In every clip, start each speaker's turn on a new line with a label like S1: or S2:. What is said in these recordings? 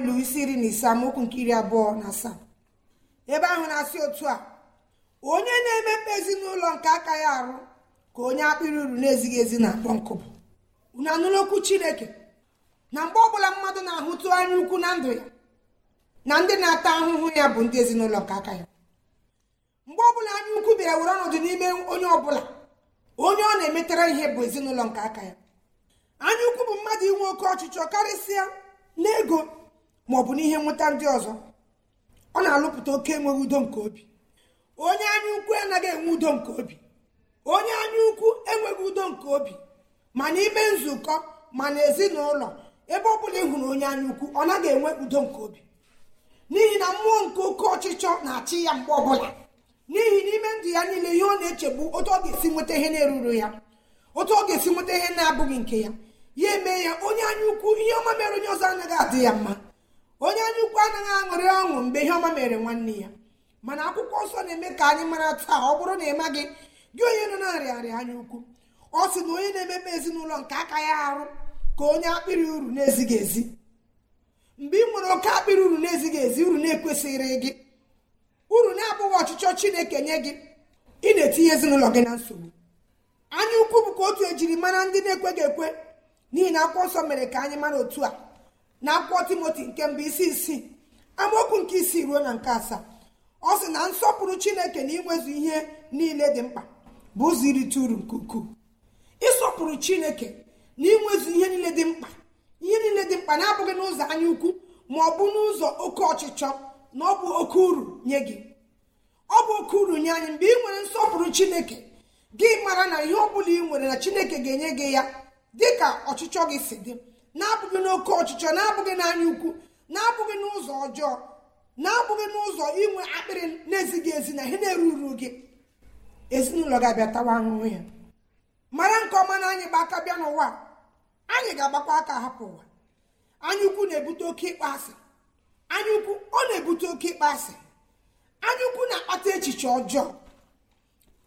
S1: ilu isi iri na ise amaokwu nke iri abụọ na asaa ebe ahụ na-asị otu a onye na-emekpe ezinụlọ nke aka ya arụ ka onye akpịrị uru na-ezighị ezi na-akpọ nkụ na unu chineke na mgbe ọbụla mmadụ na-ahụtụ anya ukwu na ndụ ya na ndị na-ata ahụhụ ya bụ ndị ezinụlọ nke aka ya mgbe ọbụla anya ukwu bịara were ọnọdụ n'ime onye ọbụla onye ọ na-emetara ihe bụ ezinụlọ nke aka ya anya ukwu bụ mmadụ inwe oke ọchịchọ karịsịa n'ego bụ n'ihe nweta ndị ọzọ ọ na-alụpụta oke enweghị udo nke obi onye anya ukwu anaghị enwe udo nke obi onye anya ukwu enweghị udo nke obi ma n'ime nzukọ ma n'ezinụlọ ebe ọ bụla ịhụ hụrụ onye anya ukwu ọ naghị enwe udo nke obi n'ihi na mmụọ nke oke ọchịchọ na-achị ya mgbe ọbụla n'ihi n'ime ndụ ya niile ihe ọ na-echegbu otu ọ ga-esi nweta ihe na-eruru ya otu ọ ga-esi nweta ihe na-abụghị nke ya ya eme ya onye anya ukwu ihe ọma mere onye ọzọ anaghị adị ya mma onye anya ukwu anaghị aṅụrị ọṅụ mgbe ihe ọma mere nwanne ya mana akwụkwọ nsọ na-eme ka anyị mara taa ọ bụrụ na ị maghị gị onye nọ na-arịarịa anya ukwu ọ sị na onye na-emepe ezinụlọ nke aka ya arụ ka onye akpịrị uru na-ezighị ezi mgbe ị nwere oke akpịrị uru na-ezighị ezi uru na-ekwesịrị gị uru na-abụghị ọchịchọ chineke nye gị ị na-etinye ezinụlọ gị na nsogbu anya ukwu bụ ka otu ejiri mara ndị na-ekweghị ekwe n'ihi na akwụkwọ nsọ mere ka anyị mara otu a na akwụkwọ timoti nke mbụ isi isii amaokwu nke isii ruo na nke asaa ọ sị na nsọpụrụ chineke na inwezu ihe niile dị mkpa bụ ụzọ irite uru nke ukwuu ịsọpụrụ chineke na inwezu ihe niile dị mkpa ihe niile dị mkpa na-abụghị n'ụzọ anya ukwu ma ọ bụ n'ụzọ oke ọchịchọ na ọ bụ oke uru nye gị ọ bụ oke uru nye anyị mgbe ị nwere nsọpụrụ chineke gị mara na ihe ọ bụla ị nwere na chineke ga-enye gị ya dị ka ọchịchọ gị si dị na-abụghị n'oke ọchịchọ na-abụghị n'anya ukwu na-abụghị n'ụzọ ọjọọ na-abụghị n'ụzọ inwe akpịrị na-ezighị ezi na ihe na-eruru gị ezinụlọ ga-abịa tawa ahụhụ ya mara nke ọma na anyị gba aka bịa n'ụwa anyị ga-agbakwa aka hapụ ụwa anya ukwu na-ebute oke ịkpọasị anya ukwu ọ na-ebute oke ịkpọasị anya ukwu na-akpata echiche ọjọọ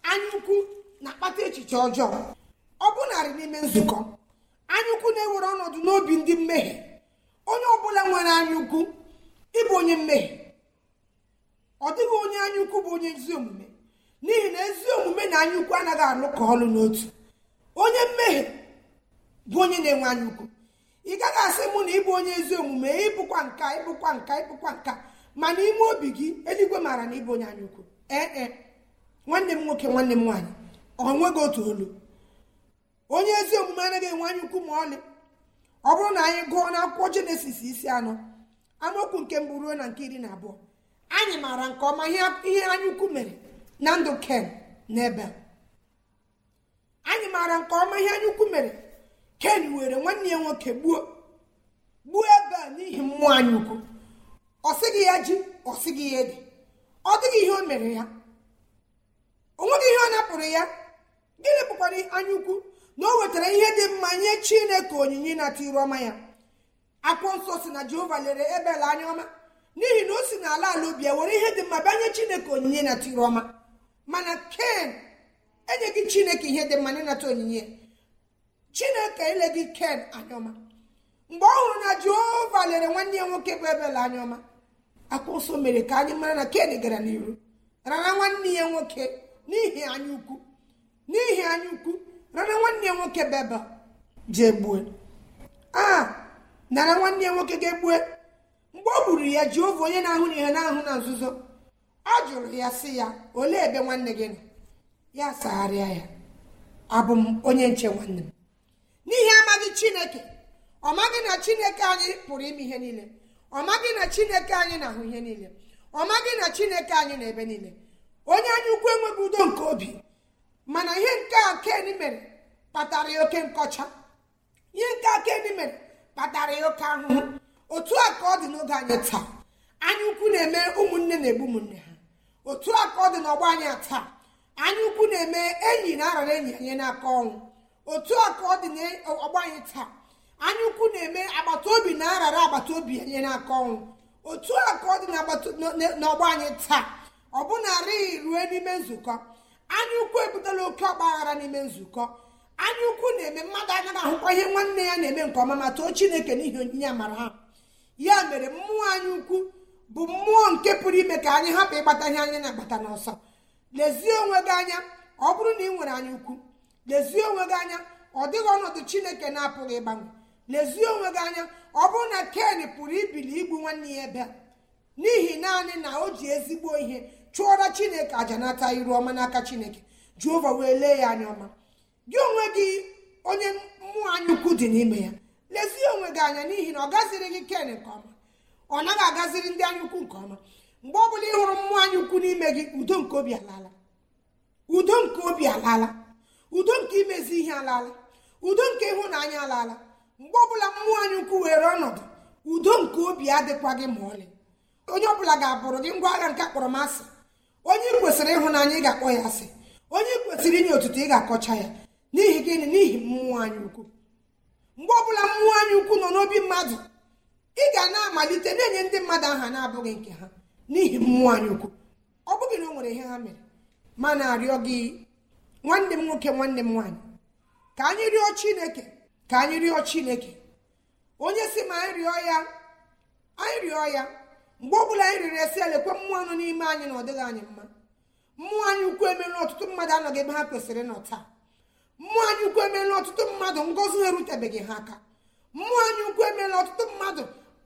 S1: anya ukwu na-akpata echiche ọjọọ ọ narị n'ime nzukọ anyaukwu na-ewere ọnọdụ n'obi ndị mmehie onye ọbụla nwere anyaukwu ịbụ onye mmehie ọ dịghị onye anyaukwu bụ onye ezi omume n'ihi na ezi omume na anyaukwu anaghị alụkọ ọlụ n'otu onye mmehie bụ onye na-enwe anyaukwu ị gaghị asị mụ na ịbụ onye ezi omume ịbụkwa nka ịbụkwa nka ịbụkwa nka mana ime obi gị eluigwe maara na ịbụ onye anyaukwu ee nwanne m nwoke nwanne m nwaanyị ọ nweghị otu olu onye ezi omume anaghị enwe anya ukwu ma ọlị ọ bụrụ na anyị gụọ akwụkwọ jenesis isi anọ amaokwu nke mbụ ruo na nke iri na abụọ anyị maara nke ọma ihe anya ukwu mere na ndụ ken na ebe anyị maara nke ọma ihe anya ukwu mere ken were nwanne ya nwoke gbuo gbuo ebe a n'ihi mmụọ anya ukwu ọ sịghị ya ji ọ sịghị ya ede ọ dịghị ihe o mere ya o nweghị ihe ọ napụrụ ya gịnị bụkwara anya ukwu na o wetara ihe dị mma nye chineke onyinye ịnata iru ọma ya akwụkwọ nsọ si na jehova lere ebel anya ọma n'ihi na o si na ala ubi ya were ihe dị mma bịa nye chineke onyinye ịnata iru ọma mana ken enyeghị chineke ihe dị mma ịnata onyinye chineke eleghị ken anya ọma mgbe ọ hụrụ na jehova lere nwanne ya nwoke bụ ebel anya ọma akwụkwọ nsọ mere ka anyị mara na ken gara n'iru rara nwanne ya nwoke n'ihi anya ukwu n'ihi anya ukwu rara nwanne nwoke bebe jee gbue a ah, nara nwanne nwoke ga-egbue mgbe ọ gburu ya Jehova onye na-ahụ na ihe na-ahụ na nzuzo ọ jụrụ ya sị ya olee ebe nwanne gị nọ ya sagharịa ya abụ m onye nche nwanne m n'ihi amaghị Chineke ọ maghị na Chineke anyị pụrụ ime ihe niile ọ maghị na Chineke anyị na-ahụ ihe niile ọ maghị na Chineke anyị na ebe niile onye anyị ukwu enweghị udo nke obi mana ihe nke a ken mere kpatara ya oke nkọcha ihe nke a ken mere kpatara ya oke ahụhụ otu a ka ọ dị n'oge anyị taa anya ukwu na-eme ụmụnne na-egbu ụmụnne ha otu a ka ọ dị n'ọgbọ anyị taa anya ukwu na-eme enyi na arara enyi anyị n'aka ọnwụ otu a ka ọ dị n'ọgbọ anyị taa anya ukwu na-eme agbata obi na arara agbata obi anyị n'aka ọnwụ otu a ka ọ dị n'ọgbọ anyị taa ọ bụ na-arịghị rue n'ime nzukọ anya ukwu ebutela oke ọgba n'ime nzukọ anya ukwu na-eme mmadụ anaghị ahụkwa ihe nwanne ya na-eme nke ọma ma too chineke n'ihi onyinye amara ha ya mere mmụọ anya ukwu bụ mmụọ nke pụrụ ime ka anyị hapụ ịgbata ihe anya na-agbata n'ọsọ lezie onwe gị anya ọ bụrụ na ị nwere anya ukwu lezie onwe gị anya ọ dịghị ọnọdụ chineke na-apụghị ịgbanwe lezie onwe gị anya ọ bụrụ na ken pụrụ ibili igbu nwanne ya ebe n'ihi naanị na o ji ezigbo ihe chụọra chineke aja nata iru ọma n'aka chineke jehova wee lee ya anya ọma gị onwe gị onye mmụọ anya ukwu dị n'ime ya lezie onwe gị anya n'ihi na ọ gaziri gị ken nke ọma ọ naghị agaziri ndị anya ukwu nke ọma mgbe ọ bụla ị hụrụ mmụọ anya ukwu n'ime gị udo nke obi alaala udo nke obi alaala udo nke imezi ihe alaala udo nke ịhụnanya alaala mgbe ọbụla mmụọ anya ukwu were ọnọdụ udo nke obi adịkwa gị ma ọlị onye ọbụla ga-abụrụ gị ngwa agha nke akpọrọmasị onye kwesịrị ịhụnanya ị ga-akpọ ya asị onye kwesịrị inye otuto ị ga-akọcha ya n'ihi gịnị n'ihi mmụọ anyị ukwu mgbe ọbụla mmụọ anyị ukwu nọ n'obi mmadụ ị ga na-amalite na-enye ndị mmadụ aha na-abụghị nke ha n'ihi mmụọ anyị ukwu ọ bụghị na o nwere ihe ha mere ma na-arịọ gị nwanne m nwoke nwanne m nwaanyị ka anyị rịọ chineke ka anyị rịọ chineke onye si ma anyị rịọ ya anyị rịọ ya mgbe ọ bụla anyị riri esi elekwa mmụọ nọ n'ime anyị na ọ dịghị anyị mma mmụọ anyị ukwu emerụ ọtụtụ mmadụ anọghị ebe ha kwesịrị nọ taa mmụọ anyị ukwu emeela ọtụtụ mmadụ ngọzi ha erutebeghị ha aka mmụọ anyị ukwu emeela ọtụtụ mmadụ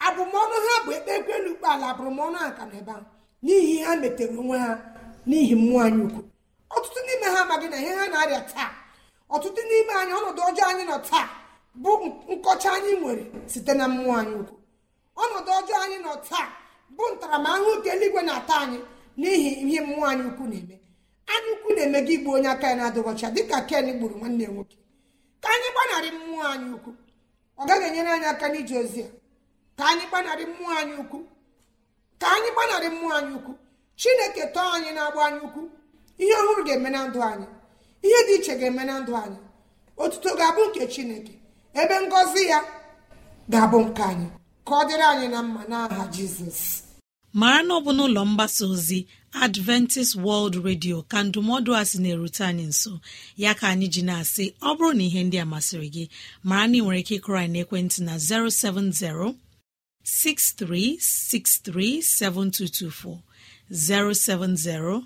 S1: abụmọnụ ha bụ ekpe ekwelu ukpe ala abụrụmọnụ aka na ebe a n'ihi ha metere onwe ha n'ihi mmụọ anyị ukwu ọtụtụ n'ime ha amaghị na ihe ha na-arịa taa ọtụtụ n'ime anyị ọnọdụ ọjọọ anyị nọ taa bụ nkọcha anyị nwere site na mmụọ anyị ukwu ọnọdụ ọjọọ anyị nọ taa bụ ntaramahụhụ nke eluigwe na-ata anyị n'ihi ihe mmụọ anyị ukwu na-eme anyị ukwu na-eme gị igbu onye aka ya na-adịghọcha dịka ken gburu nwanne ya nwoke ka anyị gbanarị mmụọ anyị ukwu ọ gaghị enyere anyị aka n'ije ozi ya ka anyị gbanarị mmụọ anyị ukwu ka anyị gbanarị mmụọ anyị ukwu chineke tọọ anyị na-agba anyị ukwu ihe ọhụrụ ga-eme na ndụ anyị ihe dị iche ga-eme na ndụ anyị otuto ga-abụ nke chineke ebe ngọzi ya ga-abụ nke anyị ka ọ dịrị anyị na mma n'aha jizọs
S2: mara na ọ bụ n'ụlọ mgbasa ozi adventist world radio ka ndụmọdụ a sị na-erute anyị nso ya ka anyị ji na-asị ọ bụrụ na ihe ndị a masịrị gị mara na ị nwere ike ịkụrọ anyị n'ekwentị na 070 6363 7224 070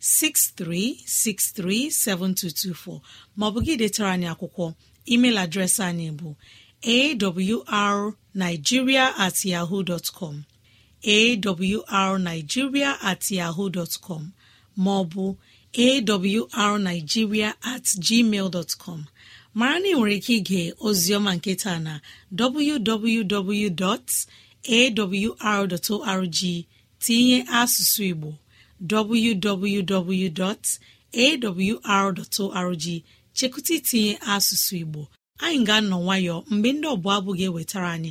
S2: 6363 7224 maọbụ gị detara anyị akwụkwọ email adreesị anyị bụ awrnigeria at yahoo dọtkọm awrnigeria at yahoo dọtkọm maọbụ awrnigeria at gmail dọtkọm mara na ị nwere ike ige ozioma nketa na www.awr.org tinye asụsụ igbo www.awr.org chekụta itinye asụsụ igbo anyị ga-anọ nwayọọ mgbe ndị ọbụla abụ ga-ewetara anyị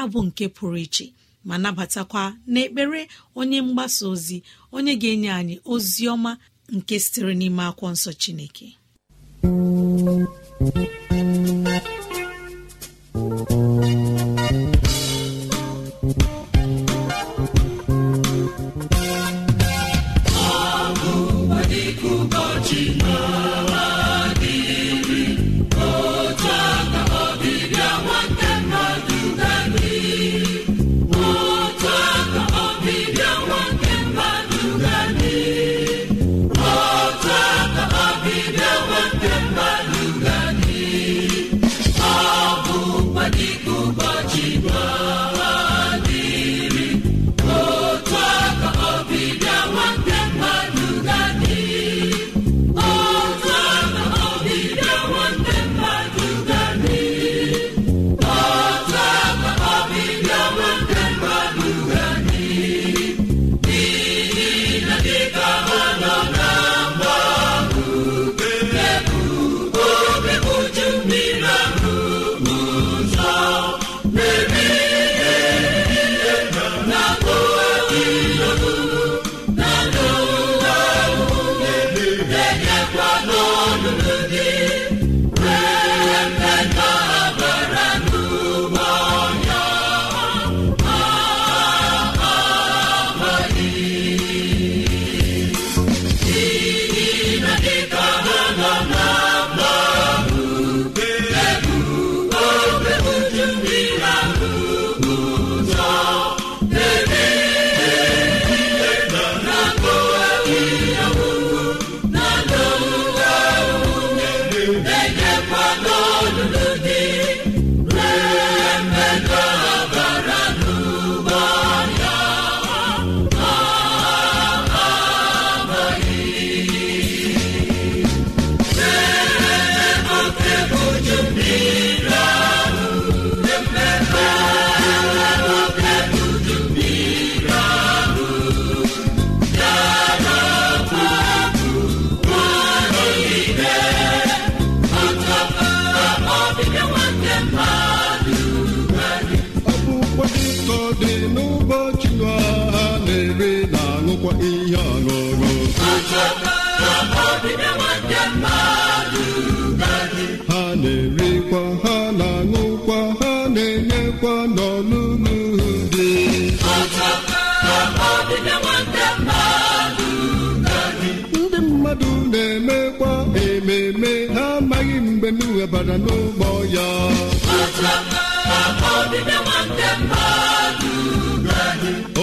S2: abụ nke pụrụ iche ma nabatakwa n'ekpere onye mgbasa ozi onye ga-enye anyị ozi ọma nke sitere n'ime akwọ nsọ Chineke
S3: ihe ọṅụṅụ ha na-erikwa ha na-aṅụkwa ha na-enyekwa n'ọlụlụ dị ndị mmadụ na-emekwa ememe ha amaghị mgbe m webara n'ụgbọ ya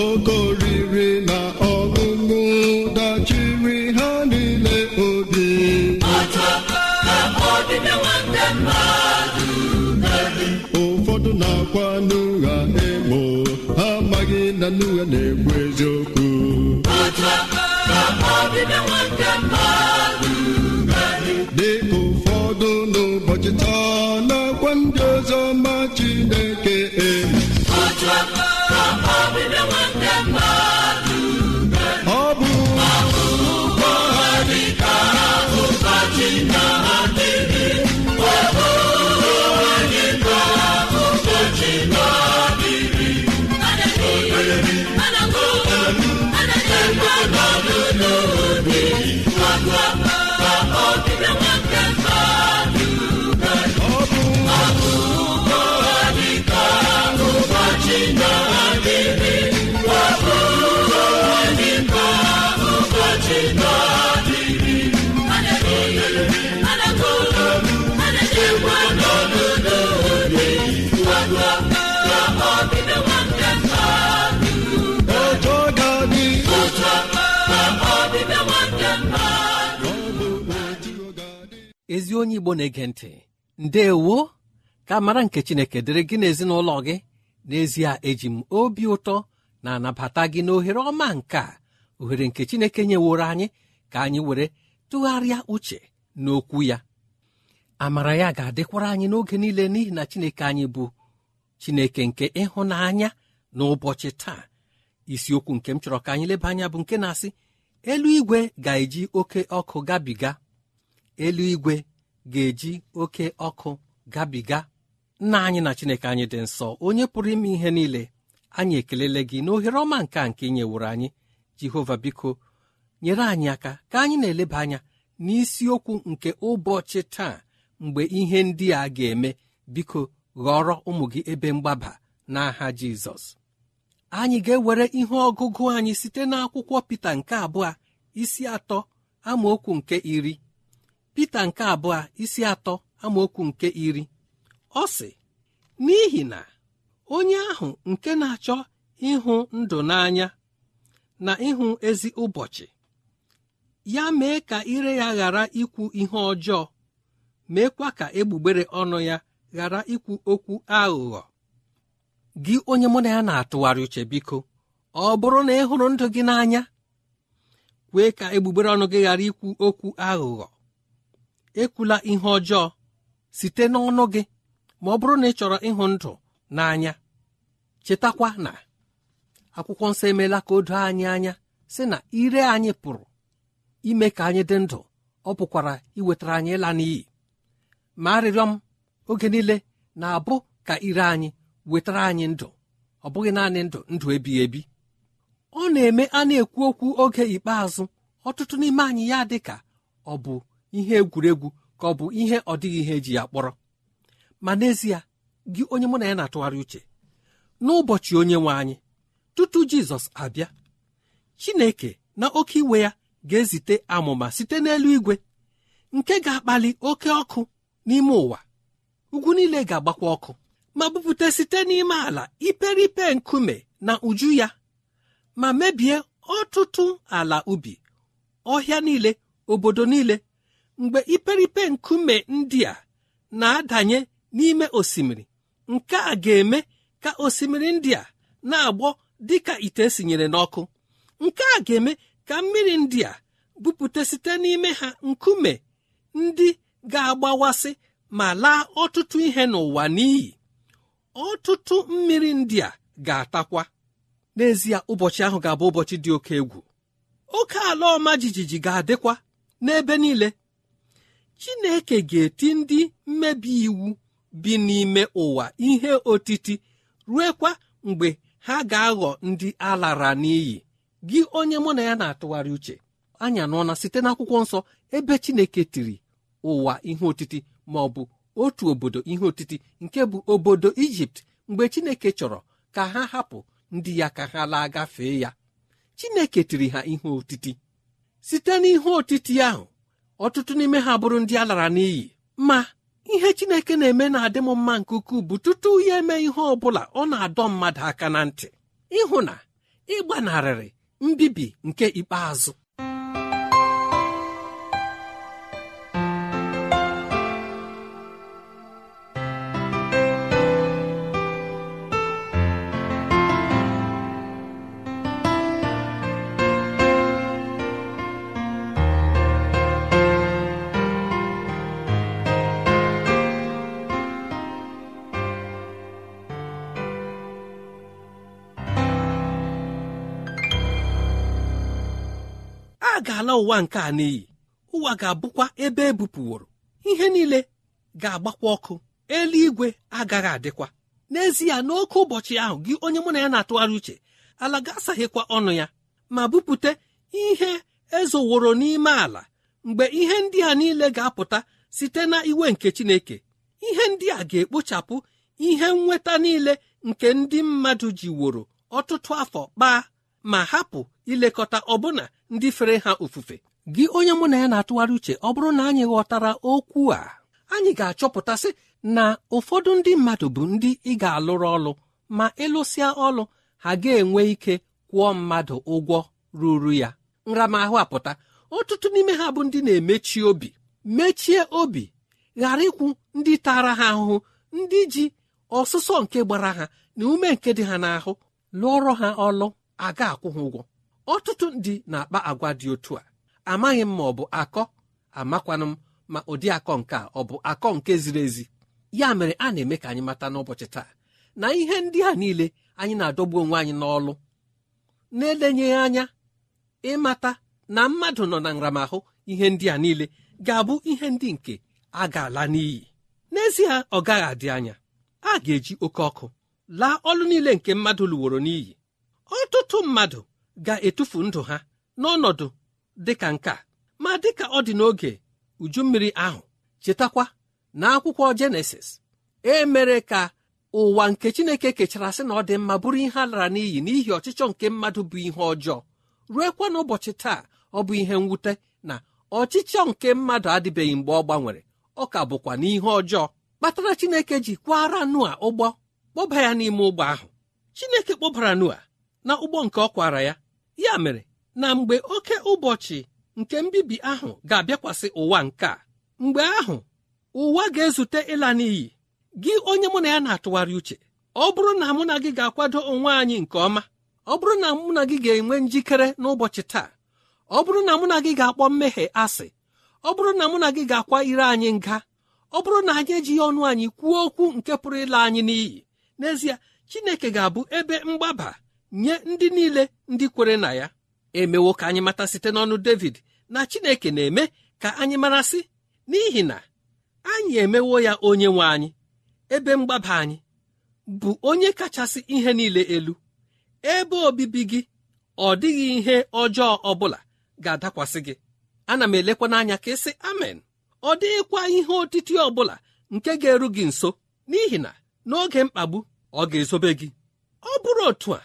S3: oke oriri na akwa n'ụgha emo ha amaghị na n'ụgha na-ekwu eziokwu dịka ụfọdụ n'ụbọchị taa na-akwa ndị ọzọ ma Chineke emo
S4: ezi onye igbo na-ege ntị ndeewo ka mara nke chineke dịrị gị n'ezinụlọ gị n'ezie eji m obi ụtọ na-anabata gị n'ohere ọma nke a ohere nke chineke nyeworo anyị ka anyị were tụgharịa uche n'okwu ya amara ya ga-adịkwara anyị n'oge niile n'ihi na chineke anyị bụ chineke nke ịhụnanya n'ụbọchị taa isiokwu nke m chọrọ ka anyị leba anya bụ nke na-asị eluigwe ga-eji oke ọkụ gabiga eluigwe ga-eji oke ọkụ gabiga nna anyị na chineke anyị dị nsọ onye pụrụ ime ihe niile anyị ekelele gị na ohere ọma nke a nke ị anyị jehova biko nyere anyị aka ka anyị na-eleba anya n'isiokwu nke ụbọchị taa mgbe ihe ndị a ga-eme biko ghọrọ ụmụ gị ebe mgbaba n'aha jizọs anyị ga-ewere ihe ọgụgụ anyị site n'akwụkwọ Pita nke abụọ isi atọ amaokwu nke iri Pita nke abụọ isi atọ amaokwu nke iri ọ sị n'ihi na onye ahụ nke na-achọ ịhụ ndụ n'anya na ịhụ ezi ụbọchị ya mee ka ire ya ghara ikwu ihe ọjọọ meekwa ka egbugbere ọnụ ya ghara ikwu okwu aghụghọ gị onye mụ na ya na-atụgharị uche biko ọ bụrụ na ị hụrụ ndụ gị n'anya kwee ka egbugbere ọnụ gị ghara ikwu okwu aghụghọ ekwula ihe ọjọọ site n'ọnụ gị ma ọ bụrụ na ị chọrọ ịhụ ndụ n'anya chetakwa na akwụkwọ nsọ emeela ka o doo anyị anya sị na ire anyị pụrụ ime ka anyị dị ndụ ọ pụkwara iwetara anyị ịla n'iyi ma arịrịọ m oge niile na-abụ ka ire anyị wetara anyị ndụ ọ bụghị naanị ndụ ndụ ebighị ebi ọ na-eme a na-ekwu okwu oge ikpeazụ ọtụtụ n'ime anyị ya dị ka ọ bụ ihe egwuregwu ka ọ bụ ihe ọ dịghị ihe eji ya kpọrọ ma n'ezie gị onye mụ na ya na-atụgharị uche n'ụbọchị onye nwe anyị tutu jizọs abịa chineke na oke iwe ya ga-ezite amụma site n'elu igwe nke ga-akpali oke ọkụ n'ime ụwa ugwu niile ga-agbakwa ọkụ ma bupụta site n'ime ala iperipe nkume na uju ya ma mebie ọtụtụ ala ubi ọhịa niile obodo niile mgbe iperipe nkume ndị a na-adanye n'ime osimiri nke a ga-eme ka osimiri ndị a na-agbọ dị ka ite esinyere n'ọkụ nke a ga-eme ka mmiri ndị a bupute site n'ime ha nkume ndị ga-agbawasị ma laa ọtụtụ ihe n'ụwa n'iyi ọtụtụ mmiri ndị a ga-atakwa n'ezie ụbọchị ahụ ga-abụ ụbọchị dị oke egwu oke ala ọma jijiji ga-adịkwa n'ebe niile chineke ga-eti ndị mmebi iwu bi n'ime ụwa ihe otiti ruekwa mgbe ha ga-aghọ ndị alara n'iyi gị onye mụ na ya na-atụgharị uche anya nọọna site n'akwụkwọ nsọ ebe chineke tiri ụwa ihe otiti ma ọ bụ otu obodo ihe otiti nke bụ obodo ijipt mgbe chineke chọrọ ka ha hapụ ndị ya ka ha laa gafee ya chineke tiri ha ihe otiti site n'ihe otiti ahụ ọtụtụ n'ime ha bụrụ ndị a lara n'iyi ma ihe chineke na-eme na-adị m mma nke ukwuu bụ tutu ya eme ihe ọ bụla ọ na-adọ mmadụ aka na ntị ịhụ na ịgbanarịrị mbibi nke ikpeazụ a ga-ala ụwa nke a n'iyi ụwa ga-abụkwa ebe ebupụworo ihe niile ga-agbakwa ọkụ eluigwe agaghị adịkwa n'ezie n'oke ụbọchị ahụ gị onye mụ na ya na-atụgharị uche ala ga-asaghịkwa ọnụ ya ma bupụta ihe ezoworo n'ime ala mgbe ihe ndị a niile ga-apụta site na iwe nke Chineke ihe ndị a ga-ekpochapụ ihe nnweta niile nke ndị mmadụ woro ọtụtụ afọ kpaa ma hapụ ilekọta ọbụna ndị fere ha ofufe gị onye mụ na ya na-atụgharị uche ọ bụrụ na anyị ghọtara okwu a anyị ga-achọpụtasị na ụfọdụ ndị mmadụ bụ ndị ị ga-alụrụ ọlụ ma ịlụsịa ọlụ ha ga-enwe ike kwụọ mmadụ ụgwọ ruru ya nramahụ apụta ọtụtụ n'ime ha bụ ndị na-emechi obi mechie obi ghara ịkwụ ndị tara ha ahụhụ ndị ji ọsụsọ nke gbara ha na ume nke dị ha n'ahụ lụọrọ ha ọlụ a ga-akwụ ha ụgwọ ọtụtụ ndị na-akpa agwa dị otu a amaghị m ma ọ bụ akọ amakwanụ m ma ụdị akọ nke a ọ bụ akọ nke ziri ezi ya mere a na-eme ka anyị mata n'ụbọchị taa na ihe ndị a niile anyị na-adọgbu onwe anyị n'ọlụ na-elenye anya ịmata na mmadụ nọ na nramahụ ihe ndị a niile ga-abụ ihe ndị nke a ga-ala n'iyi n'ezie ọ gaghị adị anya a ga-eji oke ọkụ laa ọlụ niile nke mmadụ lụworo n'iyi ọtụtụ mmadụ ga-etufu ndụ ha n'ọnọdụ dịka nke a ma dịka ọ dị n'oge uju mmiri ahụ chetakwa na akwụkwọ jenesis e mere ka ụwa nke chineke kechara sị na ọ dị mma bụrụ ihe a lara n'iyi n'ihi ọchịchọ nke mmadụ bụ ihe ọjọọ ruekwa n'ụbọchị taa ọ bụ ihe mwute na ọchịchọ nke mmadụ adịbeghị mgbe ọ gbanwere ọ ka bụkwa n'ihe ọjọọ kpatara chineke ji kwara nua ụgbọ kpọba ya n'ime ụgbọ ahụ chineke kpọbara nua na ụgbọ nke ọ kwara ya ya mere na mgbe oke ụbọchị nke mbibi ahụ ga-abịakwasị ụwa nke a mgbe ahụ ụwa ga-ezute ịla n'iyi gị onye mụ na ya na-atụgharị uche ọ bụrụ na mụ na gị ga-akwado onwe anyị nke ọma ọ bụrụ na mụ na gị ga-enwe njikere n'ụbọchị taa ọ bụrụ na mụ na gị ga-akpọ mmehie asị ọ bụrụ na mụ na gị ga-akwa ire anyị nga ọ bụrụ na anyị ejighị ọnụ anyị kwuo okwu nke pụrụ ịla anyị n'iyi n'ezie Chineke ga-abụ ebe mgbaba nye ndị niile ndị kwere na ya emewo ka anyị mata site n'ọnụ David na Chineke na-eme ka anyị marasị n'ihi na anyị emewo ya onye nwe anyị ebe mgbaba anyị bụ onye kachasị ihe niile elu ebe obibi gị ọ dịghị ihe ọjọọ ọbụla ga-adakwasị gị ana m elekwa n'anya ka ịsị amen ọ dịghịkwa ihe otiti ọ nke ga-eru gị nso n'ihi na n'oge mkpagbu ọ ga-ezobe gị ọ bụrụ otu a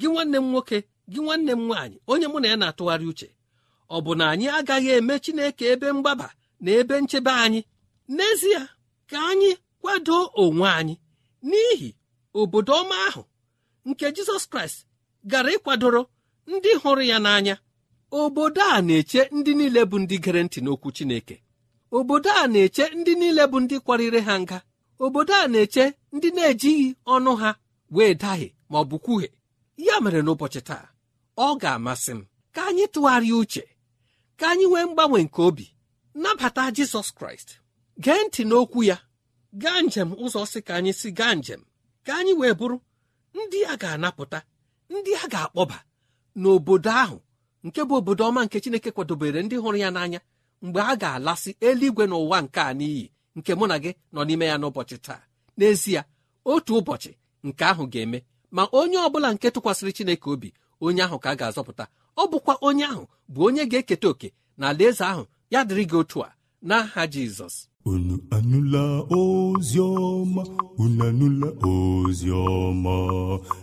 S4: gị nwanne m nwoke gị nwanne m nwaanyị onye mụ na ya na-atụgharị uche ọ bụ na anyị agaghị eme Chineke ebe mgbaba na ebe nchebe anyị n'ezie ka anyị kwado onwe anyị n'ihi obodo ọma ahụ nke Jizọs Kraịst gara ịkwadoro ndị hụrụ ya n'anya obodo a na-eche ndị niile bụ ndị gere ntị n'okwu Chineke obodo a na-eche ndị niile bụ ndị kwarịrị ha nga obodo a na-eche ndị na-ejighị ọnụ ha wee dahie ma ọ bụ kwuhie ya mere n'ụbọchị taa ọ ga-amasị m ka anyị tụgharịa uche ka anyị nwee mgbanwe nke obi nabata jizọs kraịst gee ntị n'okwu ya gaa njem ụzọ si ka anyị si gaa njem ka anyị wee bụrụ ndị a ga-anapụta ndị a ga-akpọba n'obodo ahụ nke bụ obodo ọma nke chineke kwadobere ndị hụrụ ya n'anya mgbe a ga-alasị eluigwe na ụwa nke a n'iyi nke mụ na gị nọ n'ime ya n'ụbọchị taa n'ezie otu ụbọchị nke ahụ ga-eme ma onye ọbụla nke tụkwasịrị chineke obi onye ahụ ka a ga-azọpụta ọ bụkwa onye ahụ bụ onye ga-eketa oke na alaeze ahụ ya dịrị gị otu a n'aha jizọs
S3: unu anụla ozi ọma unu anụla ozi ọma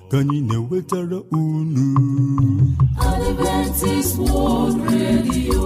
S3: ka anyị na-ewetara unu Adventist
S5: World Radio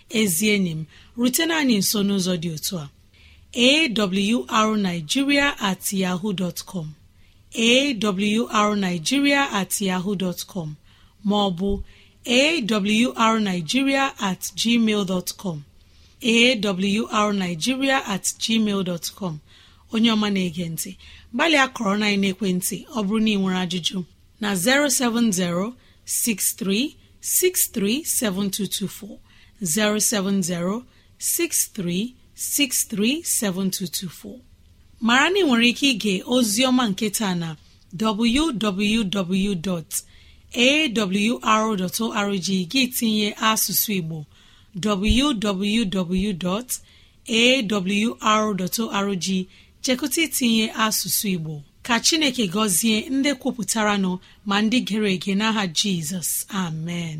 S2: ezi enyi m rutena anyị nso n'ụzọ dị otu a awrnigeria at ma ọ bụ at yahoo maọbụ at gmail at onye ọma na-ege ntị gbalịa kọrọ na ekwentị ọ bụrụ na ị nwere ajụjụ na 070 6363 7224. 07063637224 mara na ị nwere ike ige ozioma nketa na www.awr.org gị tinye asụsụ Igbo www.awr.org chekụta itinye asụsụ Igbo ka Chineke gọzie ndị kwupụtara nọ ma ndị gere ege n'aha Jizọs amen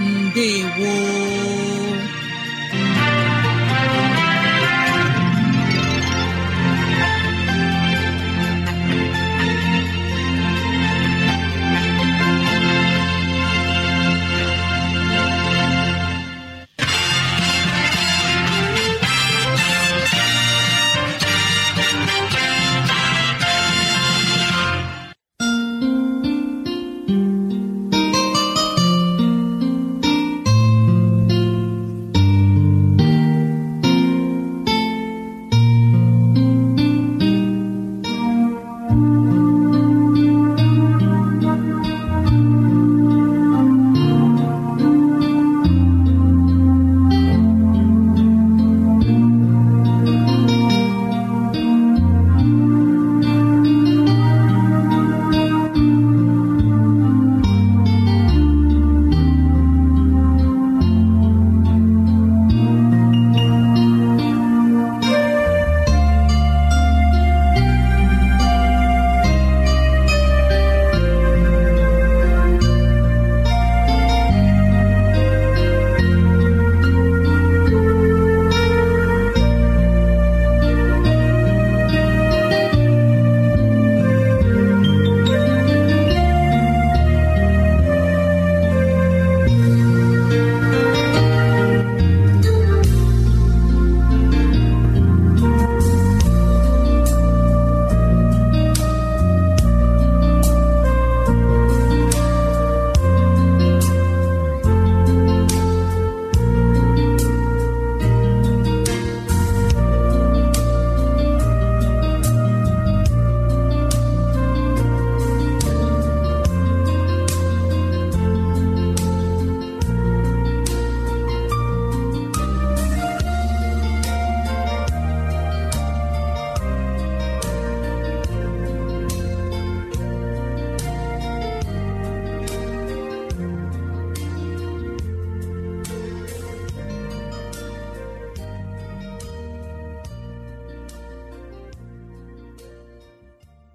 S2: Ndewo